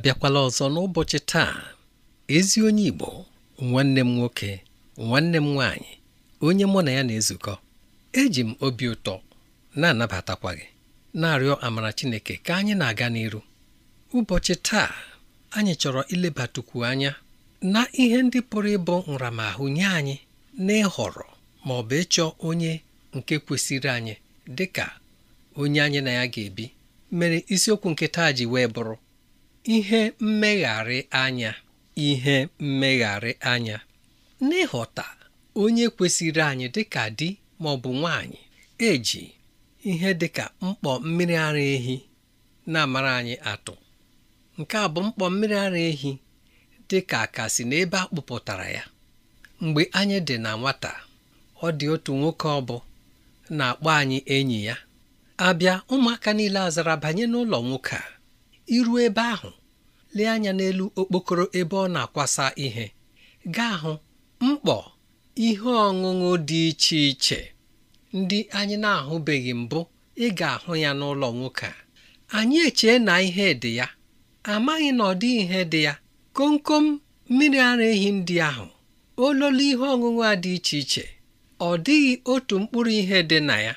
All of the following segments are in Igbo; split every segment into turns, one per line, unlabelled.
abịakwala ọzọ n'ụbọchị taa ezi onye Igbo nwanne m nwoke nwanne m nwaanyị onye mụ na ya na-ezukọ eji m obi ụtọ na-anabatakwa gị na-arịọ amara Chineke ka anyị na-aga n'iru ụbọchị taa anyị chọrọ ilebatukwu anya na ihe ndị pụrụ ịbụ nramahụ nye anyị na ịhọrọ ma ọ bụ ịchọ onye nke kwesịrị anyị dị ka onye anyị na ya ga-ebi mere isiokwu nke taa ji wee bụrụ ihe mmegharị anya ihe mmegharị anya n'ịghọta onye kwesịrị anyị dịka di ma ọ bụ nwanyị eji ihe dịka mkpọ mmiri ara ehi na-amara anyị atụ nke a bụ mkpọ mmiri ara ehi dị ka akasi n'ebe a kpụpụtara ya mgbe anyị dị na nwata ọ dị otu nwoke ọ bụ na-akpọ anyị enyi ya abịa ụmụaka niile azara banye n'ụlọ nwoke a iru ebe ahụ lee anya n'elu okpokoro ebe ọ na-akwasa ihe gaa hụ mkpọ ihe ọṅụṅụ dị iche iche ndị anyị na-ahụbeghị mbụ ị ga-ahụ ya n'ụlọ nwoke a anyị echee na ihe dị ya amaghị na ọ dị ihe dị ya komkom mmiri ara ehi ndị ahụ ololo ihe ọṅụṅụ a dị iche iche ọ dịghị otu mkpụrụ ihe dị na ya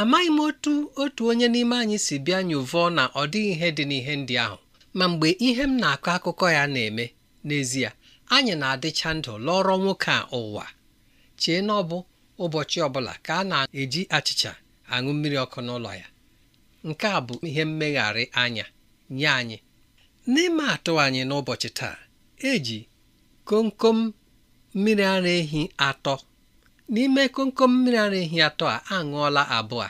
amaghị m otu otu onye n'ime anyị si bịa nyụvọọ na ọ dịghị ihe dị n'ihe ndị ahụ ma mgbe ihe m na-akọ akụkọ ya na-eme n'ezie anyị na-adịcha ndụ lọrọ nwoke a ụwa chee na ọ bụ ụbọchị ọbụla ka a na-eji achịcha aṅụ mmiri ọkụ n'ụlọ ya nke a bụ ihe mmegharị anya nye anyị n'ime atụ anyị n'ụbọchị taa eji komkom mmiri ara ehi atọ n'ime komkom mmiri ara ehi atọ a aṅụọla abụọ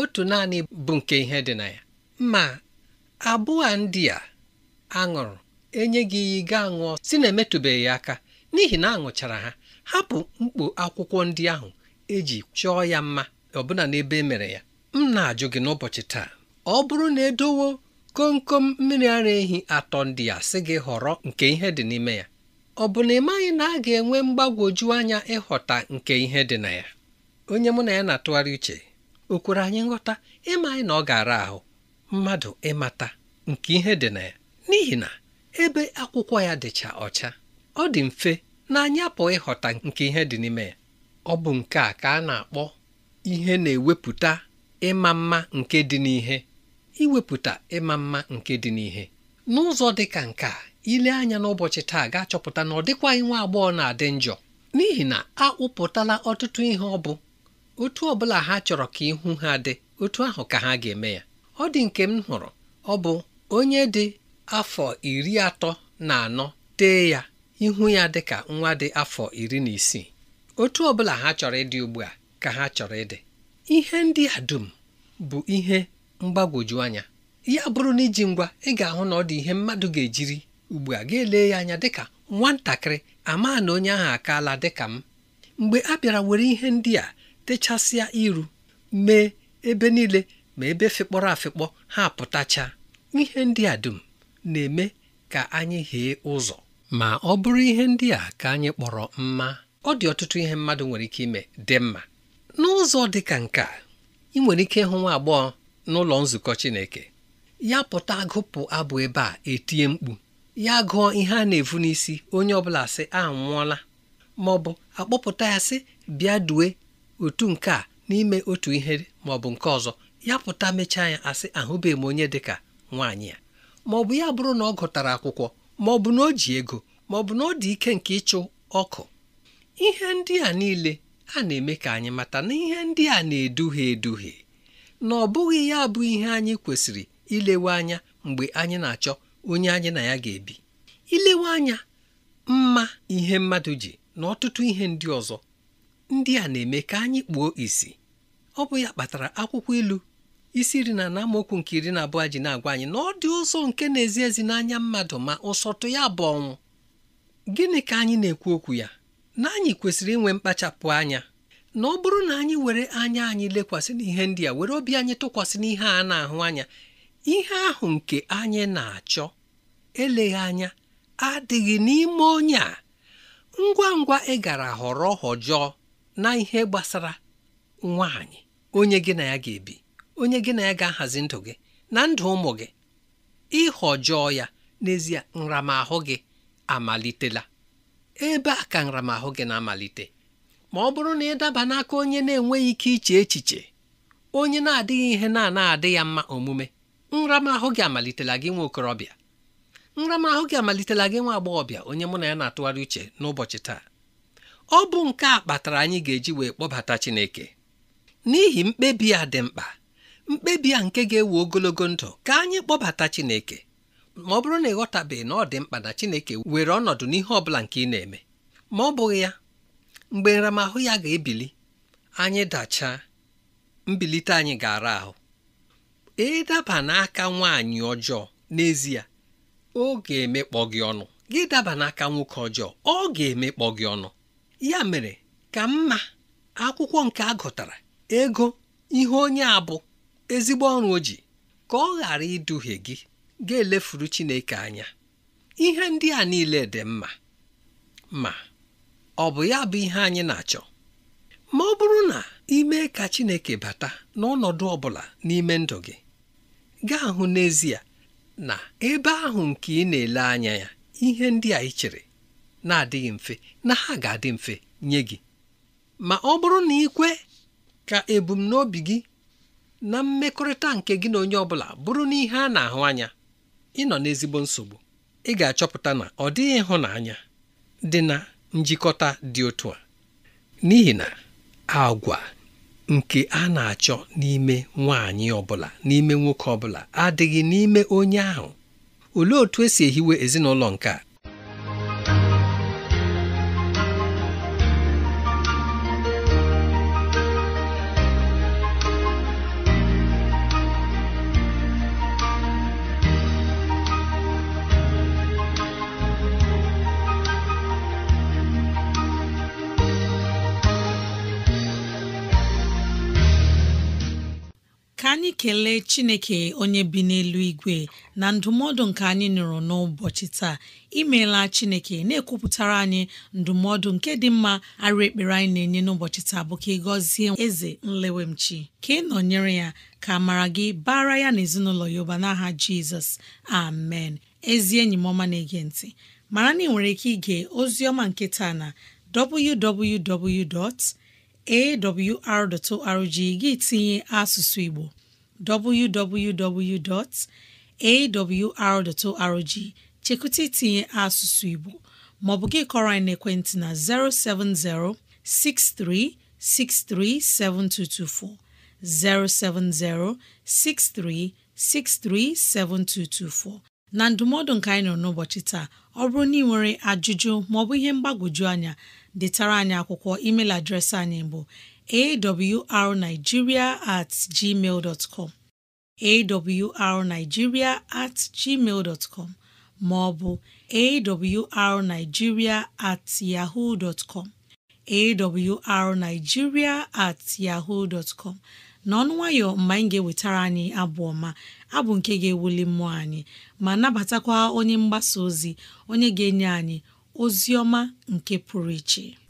otu naanị bụ nke ihe dị na ya ma abụọ ndị a aṅụrụ e gị iyi ga aṅụọ si na emetụbeghị aka n'ihi na aṅụchara ha hapụ mkpu akwụkwọ ndị ahụ eji chọọ ya mma ọbụna n'ebe e mere ya m na-ajụ gị n'ụbọchị taa ọ bụrụ na edowo komkom mmiri ara ehi atọ ndị a sị gị họrọ nke ihe dị n'ime ya ọ bụ na ịmaghị na a ga-enwe mgbagwoju anya ịghọta nke ihe dị na ya onye mụ na ya na-atụgharị uche o kwere anyị nghọta ịmaghị na ọ ga-ara ahụ mmadụ ịmata nke ihe dị na ya n'ihi na ebe akwụkwọ ya dịcha ọcha ọ dị mfe na anyị apụ ịghọta nke ihe dị n'ime ya ọ bụ nke a ka a na-akpọ ihe na-ewepụta ịma mma nke dị n'ihe iwepụta ịma mma nke dị n'ihe n'ụzọ dị ka nke a ile anya n'ụbọchị taa ga-achọpụta na ọ dịkwaghị nwa agbọghọ na-adị njọ n'ihi na a kpụpụtala ọtụtụ ihe ọ bụ otu ọ bụla ha chọrọ ka ihu ha dị otu ahụ ka ha ga-eme ya ọ dị nke m hụrụ ọ bụ onye dị afọ iri atọ na anọ tee ya ihu ya dị ka nwa dị afọ iri na isii otu ọ bụla ha chọrọ ịdị ugbu a ka ha chọrọ ịdị ihe ndị a dum bụ ihe mgbagwoju anya ya bụrụ na iji ngwa ị ga-ahụ na ọ dị ihe mmadụ ga-ejiri ugbu a ga-ele ya anya dịka nwatakịrị ama na onye ahụ akaala dịka m mgbe a bịara were ihe ndị a techasịa iru mee ebe niile ma ebe fịkpọrọ afịkpọ ha pụtacha ihe ndị a dum na-eme ka anyị ghee ụzọ ma ọ bụrụ ihe ndị a ka anyị kpọrọ mma ọ dị ọtụtụ ihe mmadụ nwere ike ime dị mma n'ụzọ dị ka nke a ị nwere ike ịhụ nwa agbọghọ n'ụlọ nzukọ Chineke ya pụta gụpụ abụ ebe a etinye mkpu ya gụọ ihe a na-evu n'isi onye ọbụla sị anwụọla ma ọ bụ akpọpụta ya sị bịa due otu nke a n'ime otu ihe ma ọ bụ nke ọzọ ya pụta mechaa ya asị ahụbeghị m onye dị ka nwaanyị ya ma ọ bụ ya bụrụ na ọ gụtara akwụkwọ ma ọ bụ na o ji ego ma ọ bụ na ọ dị ike nke ịchụ ọkụ ihe ndị a niile a na-eme ka anyị mata na ihe ndị a na-eduhie eduhie na ọ bụghị ya bụ ihe anyị kwesịrị ilewe anya mgbe anyị na-achọ onye anyị na ya ga-ebi ilewe anya mma ihe mmadụ ji na ọtụtụ ihe ndị ọzọ ndị a na-eme ka anyị kpuo isi ọ bụ ya kpatara akwụkwọ ilu isi iri na amaokwu nke iri na abụọ ji na-agwa anyị na ọ dị ụzọ nke na-ezi ezi n'anya mmadụ ma ụsọtụ ya bụ ọnwụ gịnị ka anyị na-ekwu okwu ya na anyị kwesịrị inwe mkpachapụ anya na ọ bụrụ na anyị were anya anyị lekwasị n'ihe ndị a were obi anyị tụkwasị n'ihe a na-ahụ anya ihe ahụ nke anyị na-achọ eleghị anya adịghị n'ime onye a ngwa ngwa ị gara họrọ họjọọ na ihe gbasara nwaanyị onye gị na ya ga-ebi onye gị na ya ga-ahazi ndụ gị na ndụ ụmụ gị ịhọjọọ ya n'ezie nramahụ gị amalitela ebe a ka nramahụ gị na-amalite ma ọ bụrụ na ị daba n'aka onye na-enweghị ike iche echiche onye na-adịghị ihe na-ana adị ya mma omume nramahụ gị amalitela gị nwa okorobịa nramahụ gị amalitela gị nwa agbọghọbịa onye mụ na ya na-atụgharị uche n'ụbọchị taa ọ bụ nke a kpatara anyị ga-eji wee kpọbata Chineke n'ihi mkpebi a dị mkpa mkpebi a nke ga-ewe ogologo ndụ ka anyị kpọbata Chineke ma ọ bụrụ na ịghọtabeghị na ọ dị mkpa na Chineke were ọnọdụ n'ihe ọ bụla nke ị na-eme ma ọ bụghị ya mgbe nramahụ ya ga-ebili anyị dachaa mbilite anyị ga-ara ahụ ịdaba n'aka nwaanyị ọjọọ n'ezie ọ ga-emekpọ gị ọnụ gị daba n'aka nwoke ọjọọ ọ ga-emekpọ gị ọnụ ya mere ka mma akwụkwọ nke a gụtara ego ihe onye a bụ ezigbo ọrụ o ji ka ọ ghara iduhie gị ga-elefuru Chineke anya ihe ndị a niile dị mma ma ọ bụ ya bụ ihe anyị na-achọ ma ọ bụrụ na ime ka Chineke bata n'ọnọdụ ọ n'ime ndụ gị gaa hụ n'ezie na ebe ahụ nke ị na-ele anya ya ihe ndị a ị chere na-adịghị mfe na ha ga-adị mfe nye gị ma ọ bụrụ na ikwe ka ebumnobi gị na mmekọrịta nke gị na onye ọ bụla bụrụ na ihe a na-ahụ anya ị nọ n'ezigbo nsogbu ị ga-achọpụta na ọ dịghị ịhụnanya dị na njikọta dị otu a n'ihi na agwa nke a na-achọ n'ime nwaanyị ọbụla n'ime nwoke ọbụla adịghị n'ime onye ahụ olee otu esi ehiwe ezinụlọ nke a
anyị kelee chineke onye bi n'elu igwe na ndụmọdụ nke anyị nụrụ n'ụbọchị taa imeela chineke na-ekwupụtara anyị ndụmọdụ nke dị mma arụ ekpere anyị na-enye n'ụbọchị taa bụ ka ị gọzie eze nlewemchi ka ị nọnyere ya ka mara gị bara ya na ezinụlọ ya n'aha jizọs amen ezi enyi m ọma na-ege ntị mara na ị nwere ike ige ozi ọma nke taa na www awr.org gị tinye asụsụ Igbo www.awr.org chekwụta itinye asụsụ Igbo maọbụ gị kọrọ anyị n'ekwentị na 070 63 7224 070 63 7224. na ndụmọdụ nka anyị nọ n'ụbọchị taa ọ bụrụ na ị nwere ajụjụ maọbụ ihe mgbagwoju anya detara anyị akwụkwọ email adreesị anyị bụ awrnigeria at gmail com awrnigeria at gmail com maọbụ arigiria at yahoo com at yaho com n'ọnụ nwayọ mgbe anyị ga-ewetara anyị abụ ọma abụ nke ga-ewuli mmụọ anyị ma nabatakwa onye mgbasa ozi onye ga-enye anyị ozi ọma nke pụrụ iche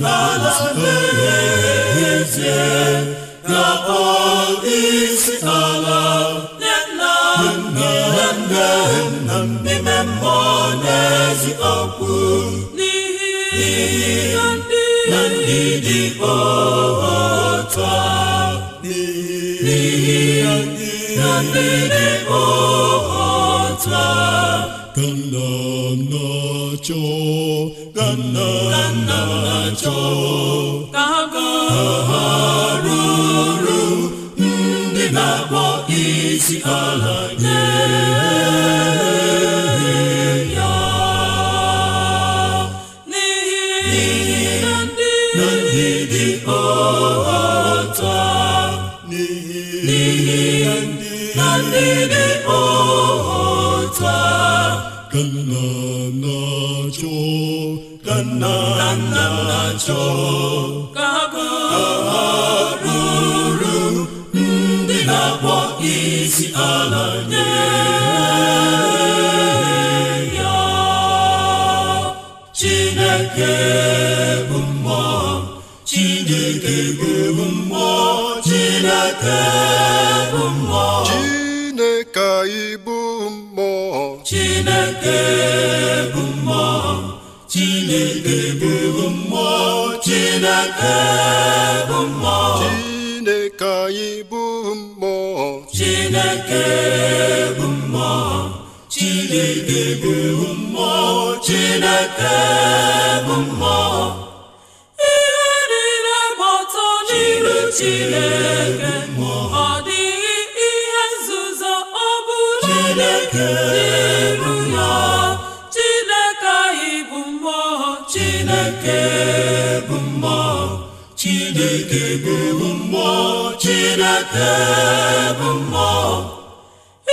la la ezie ga-akpọ na ala na na-adịgide n'ihi na ndị dị otu a n'ihi na ndị dị Kanna na cho, kanna na na-achọ ka
ha bụrụ
ndị na-akpọ isi ala nye ya Chineke bụ mmụọ Chineke bụ mmụọ Chineke bụ mmụọ Chineke anyị bụ mmụọ Chineke bụ mmụọ Chineke bụ Chineke bụ mmụọ Chineke anyị bụ mmụọ Chineke bụ mmụọ Chineke bụ mmụọ Chineke bụ mmụọ ihe niile gbata n'iru Chineke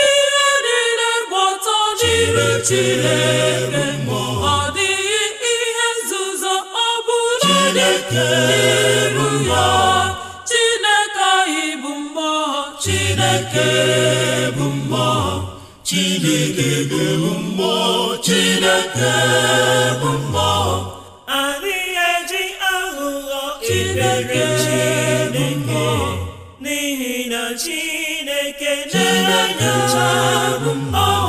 ihe niile gbọtọ chere ọ dịghị ihe nzuzo ọ bụla Chineke bụ Chineke bụ Chineke bụ mmụọ Chineke bụ mmụọ ụmụ Chineke bụ mmụọ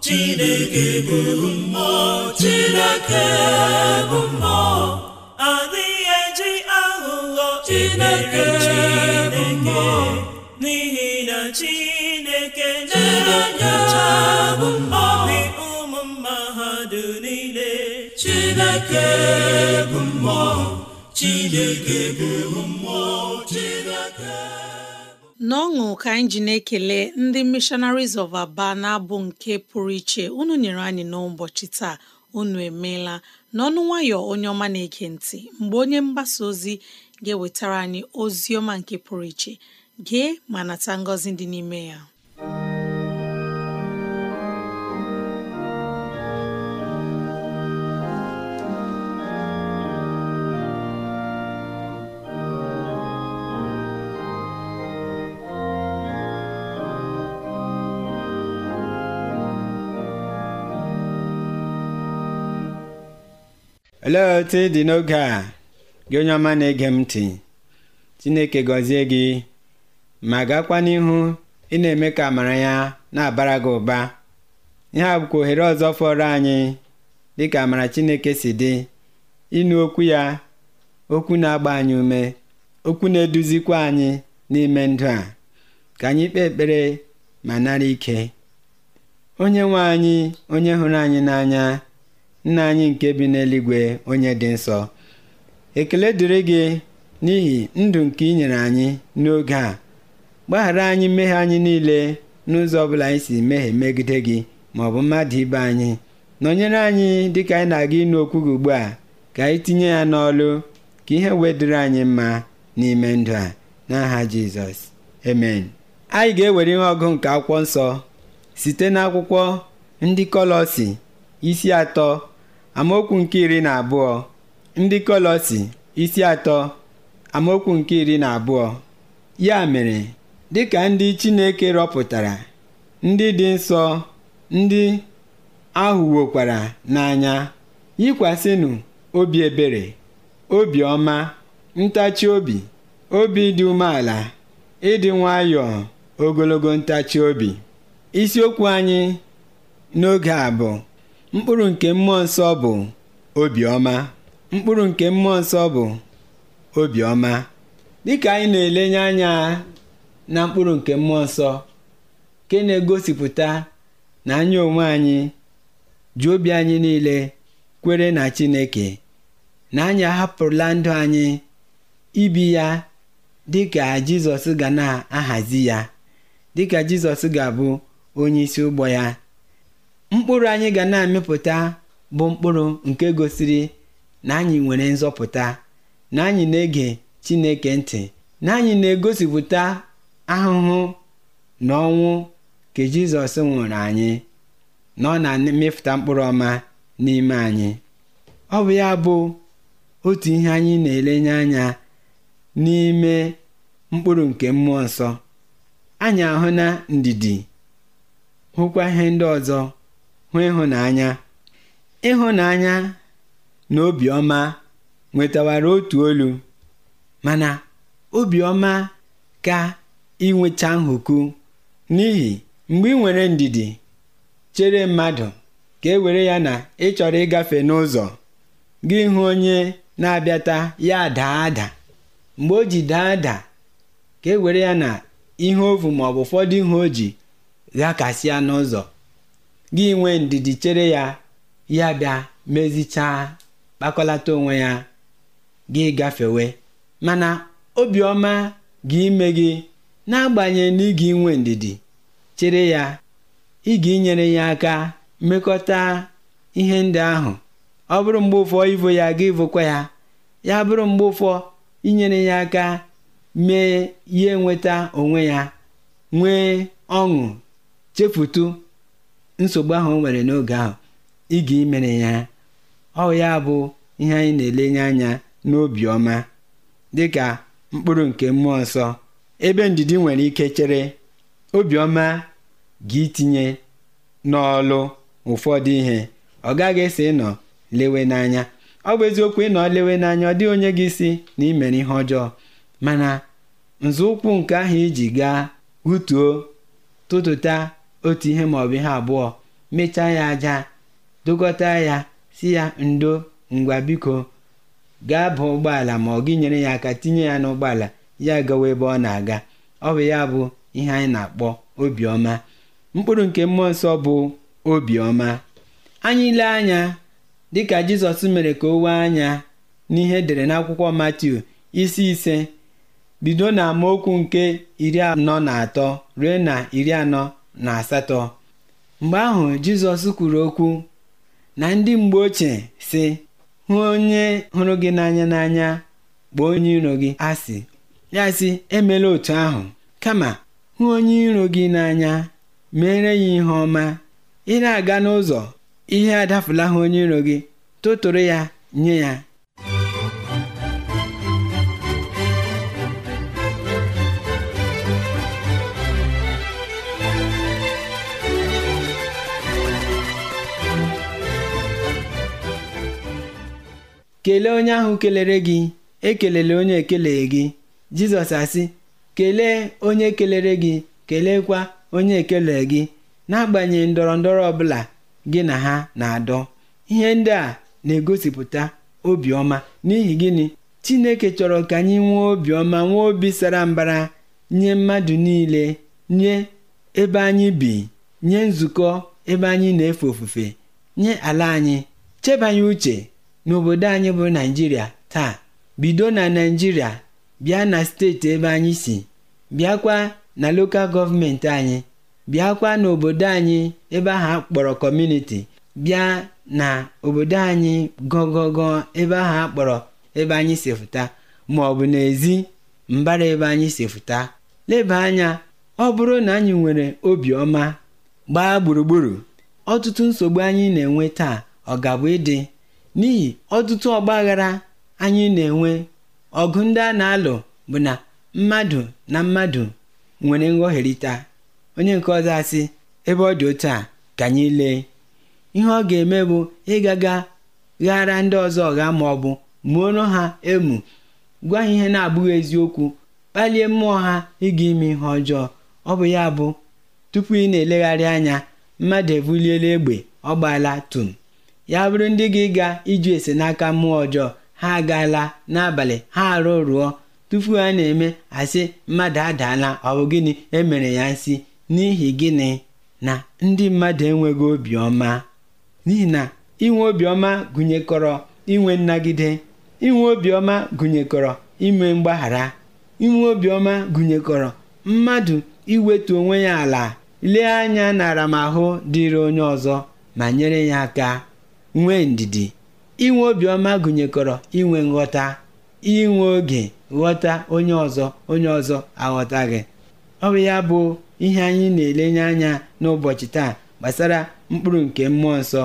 Chineke bụ mmụọ Chineke bụ adịghị eji aghụghọ Chineke bụ mmụọ n'ihi na Chineke na-enye anya obi ụmụ mma ile. niile Chineke bụ mmụọ chineke bụ mmụọ chineke
n'ọṅụ ka anyị na-ekele ndị missionaries of aba na-abụ nke pụrụ iche unu nyere anyị n'ụbọchị taa unu emeela n'ọnụ nwayọ onye ọma na-ege ntị mgbe onye mgbasa ozi ga-ewetara anyị ozi ọma nke pụrụ iche gee ma nata ngọzi dị n'ime ya
olee otu dị n'oge a gị onye ọma na-ege m ntị chineke gọzie gị ma gakwa n'ihu ị na-eme ka amara ya na-abara gị ụba ihe a bụkwa ohere ọzọ fọrọ anyị dị ka amara chineke si dị ịnụ okwu ya okwu na-agba anyị ume okwu na-eduzikwa anyị n'ime ndụ a ka anyị kpee ekpere ma nara ike onye nwe anyị onye hụrụ anyị n'anya nna anyị nke bi n'eluigwe onye dị nsọ ekele dịrị gị n'ihi ndụ nke ị nyere anyị n'oge a gbaghara anyị mmehie anyị niile n'ụzọ ọbụla anyị si mehie megide gị ma ọ bụ mmadụ ibe anyị nọnyere anyị dịka anyị na-aga ịnụ okwu gị ugbu a ka anyị tinye ya n'ọlụ ka ihe wedịrị anyị mma n'ime ndụ a n'aha jizọs amen anyị ga-ewere ihe ọgụ nke akwụkwọ nsọ site n'akwụkwọ ndị kọlọsi isi atọ amaokwu nke iri na abụọ ndị kọlọsi isi atọ amaokwu nke iri na abụọ ya mere dịka ndị chineke rọpụtara ndị dị nsọ ndị ahụ ahụwokwara n'anya yikwasịnụ obi ebere obi ọma ntachi obi obi dị umeala ịdị nwayọọ ogologo ntachi obi isiokwu anyị n'oge a mkpụrụ nke mmụọ nsọ bụ obiọma mkpụrụ nke mmụọ nsọ bụ obiọma dịka anyị na-elenye anya na mkpụrụ nke mmụọ nsọ nke na-egosipụta na anyị onwe anyị ji obi anyị niile kwere na Chineke na anyị ahapụrụla ndụ anyị ibi ya dịka Jizọs ga na-ahazi ya dịka Jizọs ga-abụ onye isi ụgbọ ya Mkpụrụ anyị ga na-amịpụta bụ mkpụrụ nke gosiri na anyị nwere nzọpụta, na anyị na-ege Chineke ntị, na anyị na-egosipụta ahụhụ na ọnwụ nke Jizọs nwụrụ anyị, na ọ na-amịpụta mkpụrụ ọma n'ime anyị. Ọ bụ ya bụ otu ihe anyị na-elenye anya n'ime mkpụrụ nke mmụọ nsọ anyị ahụ na ndidi hụkwa ihe ndị ọzọ hụ ịhụnanya ịhụnanya na obiọma nwetawara otu olu mana obiọma ka inweta nhụku n'ihi mgbe ị nwere ndidi chere mmadụ ka e were ya na ị chọrọ ịgafe n'ụzọ gị hụ onye na-abịata ya daa ada mgbe o ji daa ada ka e were ya na ihe ovu maọbụ ụfọdụ ihe o ji ghakasịa n'ụzọ gịnwe nwee ndidi chere ya ya bịa mezichaa kpakọlata onwe ya gị gafewe mana obiọma gị ime gị n'agbanyeghị na ịga inwe ndidi chere ya ịga inyere ya aka mmekọta ihe ndị ahụ ọ bụrụ mgbe ụfọ ivo ya gị vụkwa ya ya bụrụ mgbe ụfọ inyere ya aka mee ya enweta onwe ya nwee ọṅụ chefutu nsogbu ahụ o nwere n'oge ahụ ịga imere ya ọ ya bụ ihe anyị na-elenye anya n'obiọma dịka mkpụrụ nke mmụọ nsọ ebe ndidi nwere ike chere obiọma ga itinye n'ọlụ ụfọdụ ihe ọ gaghị esi ịnọ lewe n'anya ọ bụ eziokwu ịnọ lewe n'anya ọ dịghị onye gị isi na imere ihe ọjọọ mana nzọụkwụ nke ahụ iji gaa hutuo tụtụta otu ihe maọbụ ihe abụọ mechaa ya aja dokọta ya si ya ndo ngwa biko gaa bụ ụgbọala ma ọ gị nyere ya aka tinye ya n'ụgbọala ya gawa ebe ọ na-aga ọ bụ ya bụ ihe anyị na-akpọ obiọma mkpụrụ nke mmụọ nsọ bụ obiọma anyị ile anya dịka jizọs mere ka o wee anya n'ihe edere n'akwụkwọ matiu isi ise bido na amaokwu nke iri anọ na atọ ruo na iri anọ na asatọ mgbe ahụ Jizọs kwuru okwu na ndị mgbe ochie sị hụ onye hụrụ gị n'anya n'anya gbuo onye iro gị asị ya sị emela otu ahụ kama hụ onye iro gị n'anya mere ya ihe ọma ị na-aga n'ụzọ ihe adafula ha onye iro gị tụtụrụ ya nye ya kelee onye ahụ kelere gị ekelele onye ekeleghị gị jizọs asị kelee onye kelere gị keleekwa onye ekele gị n'agbanyeghị ndọrọ ndọrọ ọbụla gị na ha na-adọ ihe ndị a na-egosipụta obiọma n'ihi gịnị chineke chọrọ ka anyị nwee obiọma nwee obi sara mbara nye mmadụ niile nye ebe anyị bi nye nzukọ ebe anyị na-efe ofufe nye ala anyị chebanye uche n'obodo anyị bụ naijiria taa bido na naijiria bịa na steeti ebe anyị si bịakwa na lokal gọọmenti anyị bịakwa n'obodo anyị ebe ahụ akpọrọ kọmuniti bịa na obodo anyị gọgọgọ ebe ahụ akpọrọ ebe anyị si fụta ma ọ bụ n'ezi mbara ebe anyị si fụta leba anya ọ bụrụ na anyị nwere obiọma gbaa gburugburu ọtụtụ nsogbu anyị na-enwe taa ọ ga-abụ ịdị N'ihi ọtụtụ ọgbaghara anyị na-enwe, ọgụ ndị a na-alụ bụ na mmadụ na mmadụ nwere nghọherịta onye nke ọzọ asị, ebe ọ dị otu a ka anyị lee, ihe ọ ga-eme bụ ịgaga ghara ndị ọzọ ma bụ maọbụ muoro ha emu, gwa ha ihe na-abụghị eziokwu, kpalie mmụọ ha ịga ime ihe ọjọọ. Ọ bụ ya bụ, tupu ị na-elegharị anya, mmadụ ebuliela egbe, ọ gbaala tum. ya bụrụ ndị gị ga ịjụ ese n'aka mmụọ ọjọọ ha agaala n'abalị ha arụ rụọ tupu ha na-eme asị mmadụ adaala ọ bụ gịnị emere ya nsị n'ihi gịnị na ndị mmadụ enweghị obiọma n'ihi na inwe obiọma gụnyekọrọ inwe nnagide inwe obiọma gụnyekọrọ ime mgbaghara inwe obiọma gụnyekọrọ mmadụ iwetu onwe ya ala lee anya na aramahụ dịrị onye ọzọ ma nyere ya aka nwee ndidi inwe obiọma gụnyekọrọ inwe nghọta inwe oge ghọta onye ọzọ onye ọzọ aghọta gị ọ bụ ya bụ ihe anyị na-elenye anya n'ụbọchị taa gbasara mkpụrụ nke mmụọ nsọ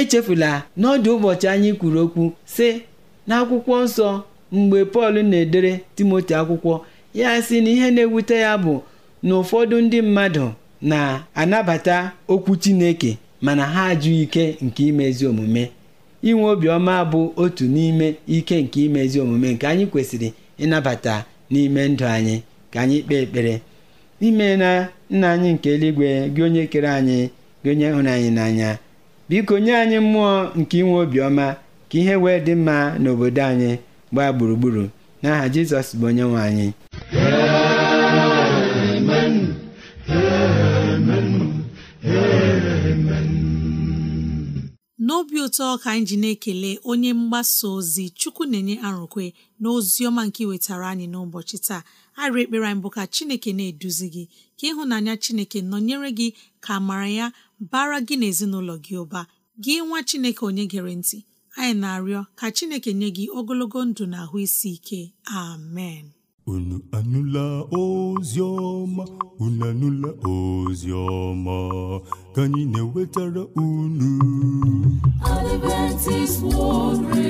echefula n'ọdụ ụbọchị anyị kwuru okwu sị n'akwụkwọ nsọ mgbe Pọl na-edere Timoti akwụkwọ ya si na ihe na-ewute ya bụ na ụfọdụ ndị mmadụ na-anabata okwu Chineke mana ha ajụ ike nke imezi omume inwe obiọma bụ otu n'ime ike nke imezi omume nke anyị kwesịrị ịnabata n'ime ndụ anyị ka anyị kpee ekpere ime na nna anyị nke eluigwe gị onye kere anyị gị onye hụrụ anyị n'anya biko nye anyị mmụọ nke inwe obiọma ka ihe wee dị mma n'obodo anyị gbaa gburugburu n'aha Jizọs bụ onye nwe anyị
ọsọ ka anyị ji na-ekele onye mgbasa ozi chukwu na-enye arụkwe na ọma nke iwetara anyị n'ụbọchị taa arị ekpere anyị bụ ka chineke na-eduzi gị ka ịhụnanya chineke nọnyere gị ka mara ya bara gị na gị ụba gị nwa chineke onye gere ntị anyị na-arịọ ka chineke nye gị ogologo ndụ na ahụ isi ike amen
unu anụla ozi ọma unu anụla ozi ọma ka anyị na-ewetara unu
Adventist World Radio